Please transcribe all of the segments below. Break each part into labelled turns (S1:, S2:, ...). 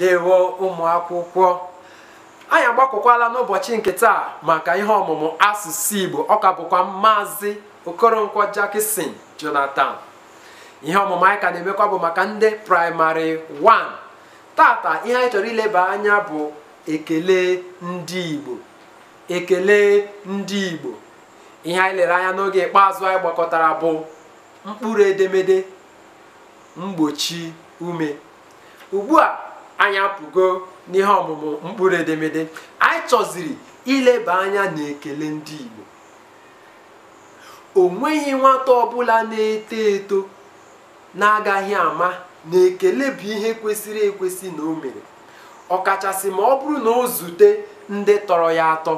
S1: ndewo ụmụ akwụkwọ anyị agbakọkwala n'ụbọchị nke taa maka ihe ọmụmụ asụsụ Igbo ọka bụkwa maazị Okoronkwo Jackson Jonathan ihe ọmụmụ anyị ka na-emekwa bụ maka ndị praịmarị 1 tata ihe anyị chọrọ ileba anya bụ ekele ndị Igbo ekele ndị Igbo ihe anyị lere anya n'oge ikpeazụ anyị gbakọtara bụ mkpụrụ edemede mgbochi ume ugbu a anya pụgo n'ihe ọmụmụ mkpụrụ edemede anyị chọziri ileba anya n'ekele ndị Igbo o nweghị nwata ọbụla na-eto eto na-agaghị ama na ekele bụ ihe kwesịrị ekwesị na o mere ọkachasị ma ọ bụrụ na o zute ndị tọrọ ya atọ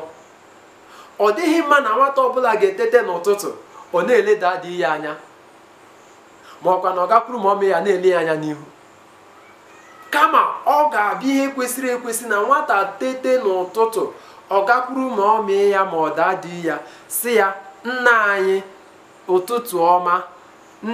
S1: ọ dịghị mma na nwata ọbụla ga-etete n'ụtụtụ ọ na-eleda adịghị ya anya ma ọkwa na ọ gakwuru ma ọmị ya na-ele ya anya n'ihu kama ọ ga-abịa ihe kwesịrị ekwesị na nwata tete n'ụtụtụ ọ gakwuru ma ọ mee ya ma ọ daa ya si ya nna anyị ụtụtụ ọma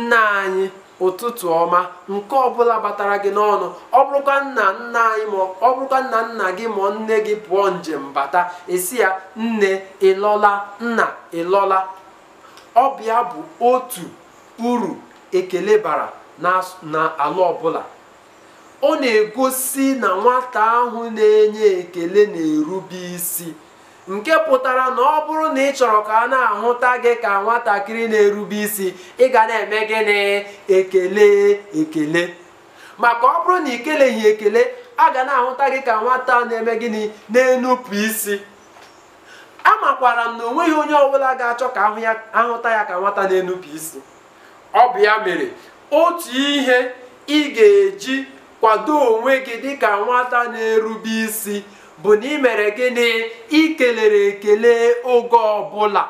S1: nna anyị ụtụtụ ọma nke ọbụla batara gị n'ọnụ ọ bụrụkwa nna nna anyị ma ọ bụrụkwa nna nna gị ma nne gị pụọ njem bata esi ya nne ịlọla nna ịlọla ọbịa bụ bụ otu uru ekele bara n'ala ọbụla ọ na-egosi na nwata ahụ na-enye ekele na-erube isi nke pụtara na ọ bụrụ na ị chọrọ ka a na-ahụta gị ka nwatakịrị na-erube isi ị ga na-eme gịnị ekele ekele maka ọ bụrụ na ị ekele a ga na-ahụta gị ka nwata na-eme gịnị na-enupụ isi amakwara m na o nweghị onye ọbụla ga-achọ ka ahụta ya ka nwata na-enupụ isi ọ bụ ya mere otu ihe ị ga-eji kwado onwe gị dịka nwata na-erube isi bụ na ị mere gịnị ikelere ekele oge ọbụla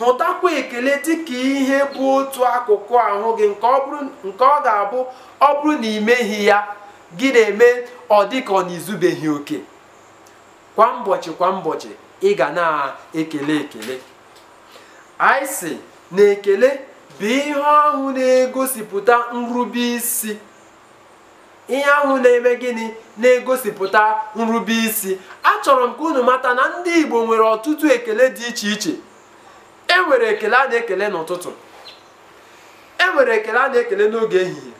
S1: hụtakwa ekele dịka ihe bụ otu akụkụ ahụ gị nke ọ ga-abụ ọ bụrụ na imeghi ya gị na-eme ọ dịka ọ na-ezubeghị oke kwa ụbọchị kwa ụbọchị ị ga na-ekele ekele anyị si na ekele bụ ihe ahụ na-egosipụta nrube isi ihe ahụ na-eme gịnị na-egosipụta nrube isi achọrọ m ka unu mata na ndị Igbo nwere ọtụtụ ekele dị iche iche e nwere ekele a na-ekele n'ụtụtụ e nwere ekele a na-ekele n'oge ehihie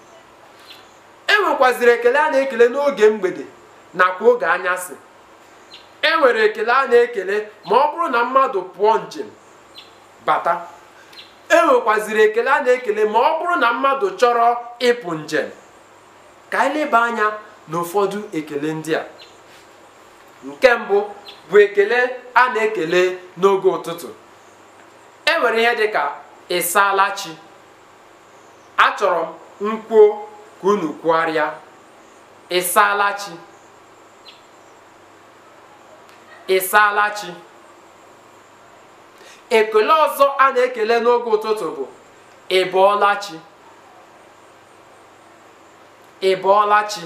S1: e nwekwaziri ekele a na-ekele n'oge mgbede nakwa oge anyasị e nwere ekele a na-ekele ma ọ bụrụ na mmadụ pụọ njem bata e nwekwaziri ekele a na-ekele ma ọ bụrụ na mmadụ chọrọ ịpụ njem ka anyị leba anya n'ụfọdụ ekele ndị a nke mbụ bụ ekele a na-ekele n'oge ụtụtụ e nwere ihe dị ka ịsaala chi achọrọ m nkwuo ka unu kwugharịa ịsaala chi ekele ọzọ a na-ekele n'oge ụtụtụ bụ ịbọọla chi ị bọọla chi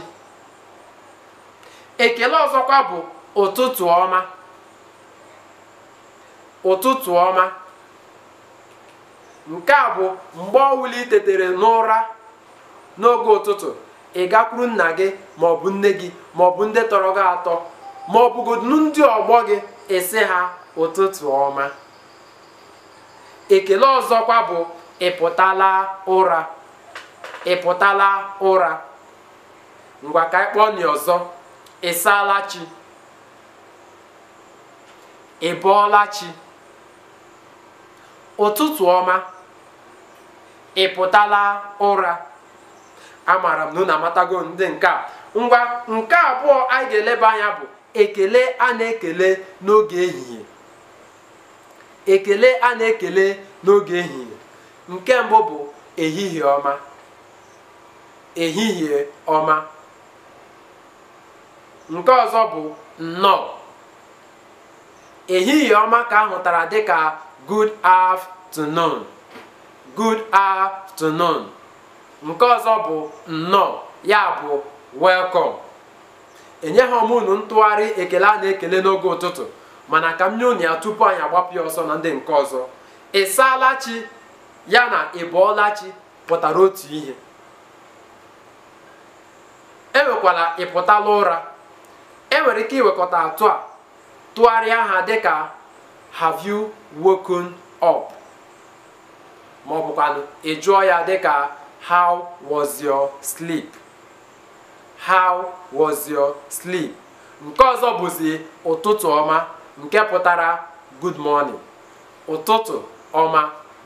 S1: ekele ọzọkwa bụ ụtụtụ ọma ụtụtụ ọma nke a bụ mgbe ọwụli tetere n'ụra n'oge ụtụtụ ị gakwuru nna gị maọbụ nne gị maọbụ ndị tọrọ gị atọ ma ọ ndị ọgbọ gị esi ha ụtụtụ ọma ekele ọzọkwa bụ ịpụtala ụra ịpụtala ụra ngwa ka anyị kpọọ ọzọ ị chi ị chi ụtụtụ ọma ị pụtala ụra amaara m na unu amatago ndị nke a ngwa nke abụọ anyị ga-eleba anya bụ ekele a na-ekele n'oge ehihie ekele a na-ekele n'oge ehihie nke mbụ bụ ehihie ọma ehihie ọma nke ọzọ bụ nnọọ ehihie ọma ka ahụtara dịka good afternoon good afternoon nke ọzọ bụ nnọọ ya bụ welcome enye ha ntụgharị ekele a na-ekele n'oge ụtụtụ mana ka m nye unu ya tupu anyị agbapụ ọsọ na ndị nke ọzọ ị ya na ị pụtara otu ihe enwekwala ịpụtala ụra enwere ike iwekọta atọ a tụgharịa ha dịka have you woken up ma ọ bụkwanụ ị jụọ ya dịka how was your sleep how was your sleep nke ọzọ bụzi ụtụtụ ọma nke pụtara good morning ụtụtụ ọma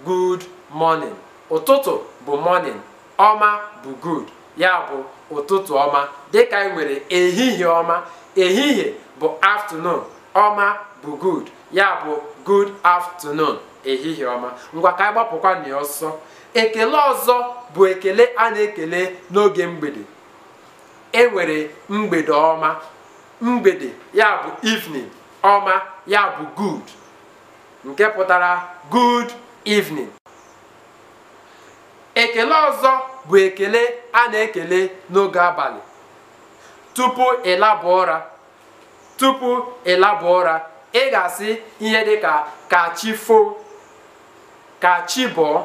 S1: good morning ụtụtụ bụ morning ọma bụ good ya bụ ụtụtụ ọma dịka ị e nwere ehihie ọma ehihie bụ afternoon ọma bụ good ya bụ good afternoon ehihie ọma ngwa ka anyị gbapụkwa na ọsọ ekele ọzọ bụ ekele a na-ekele n'oge mgbede enwere mgbede ọma mgbede ya bụ evening ọma ya bụ good nke pụtara good evening ekele ọzọ bụ ekele a na-ekele n'oge abalị tupu ịlaba ụra tupu ịlaba ụra ị ga-asị ihe dị ka chi foo ka chi bọọ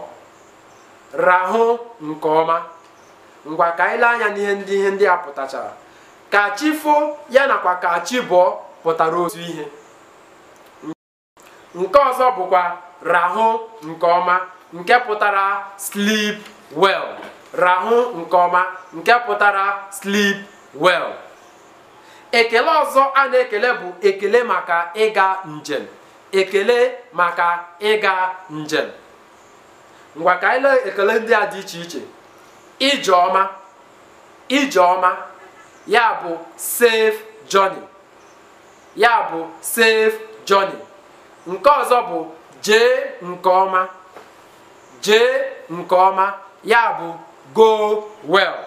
S1: rahụ nke ọma ngwa ka anyị lee anya n'ihe ndị ihe ndị a pụtachara ka chi foo ya nakwa ka pụtara otu ihe nke ọzọ bụkwa rahụ nke ọma nke pụtara sleep well rahụ nke ọma nke pụtara slip. well ekele ọzọ a na-ekele bụ ekele maka ịga njem ekele maka ịga njem ngwa ka anyị lee ekele ndị a dị iche iche ije ọma ije ọma ya bụ safe journey ya bụ safe journey nke ọzọ bụ jee nke ọma jee nke ọma ya bụ go well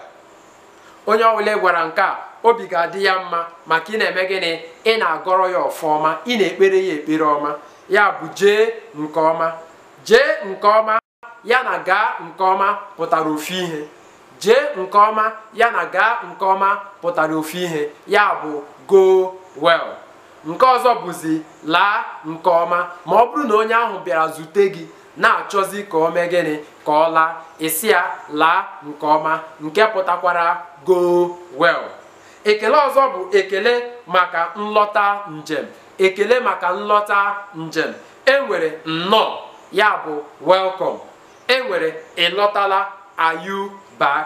S1: onye ọbụla gwara nke a obi ga-adị ya mma maka ị na-eme gịnị ị na-agọrọ ya ọfọma ị na-ekpere ya ekpere ọma ya bụ jee nke ọma jee nke ọma ya na gaa nke ọma pụtara ofu ihe jee nke ọma ya na gaa nke ọma pụtara ofu ihe ya bụ go well nke ọzọ bụzi laa nke ọma ma ọ bụrụ na onye ahụ bịara zute gị na-achọzi ka o mee gịnị ka ọ laa isi ya laa nke ọma nke pụtakwara go well ekele ọzọ bụ ekele maka nlọta njem ekele maka nlọta njem enwere nnọọ ya bụ welkọm. enwere ịlọtala ayu bak.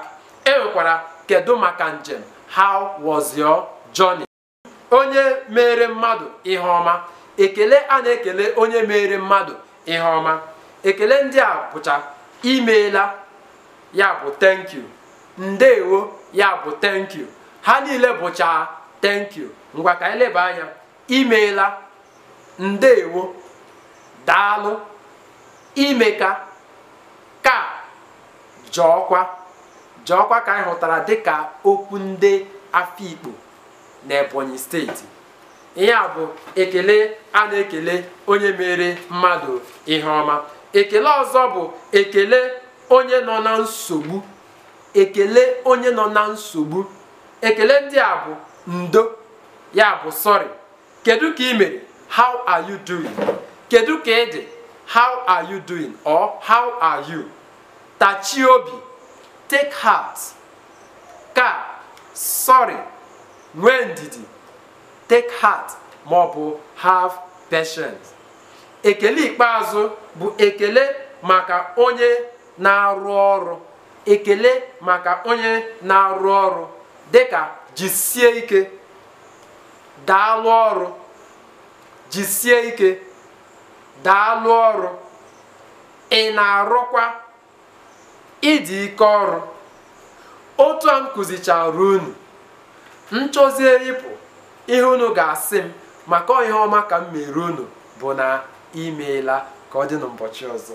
S1: enwekwara kedu maka njem how was your journey onye mere mmadụ ihe ọma ekele a na-ekele onye mere mmadụ ihe ọma ekele ndị a bụcha imeela ya bụ thank you ndeewo ya bụ thank you ha niile bụcha thank you ngwa ka anyị leba anya imeela ndewo daalụ imeka ka jọọkwa jọọkwa ka anyị hụtara dịka okwu ndị afikpo na Ebonyi steeti ihe a bụ ekele a na-ekele onye mere mmadụ ihe ọma ekele ọzọ bụ ekele onye nọ na nsogbu ekele onye nọ na nsogbu ekele ndị a bụ ndo ya bụ sorry kedu ka ị mere how are you doing kedu ka ị dị how are you doing or how are you tachie obi take heart ka sorry nwee ndidi take heart ma ọ bụ have patience ekele ikpeazụ bụ ekele maka onye na-arụ ọrụ ekele maka onye na-arụ ọrụ dịka jisie ike daalụ ọrụ jisie ike daalụ ọrụ ị na-arụkwa ịdị ike ọrụ otu a m kụzichara unu nchọzie ịpụ ihe unu ga-asị m maka ihe ọma ka m mere unu bụ na imeela ka ọ dị n'ụbọchị ọzọ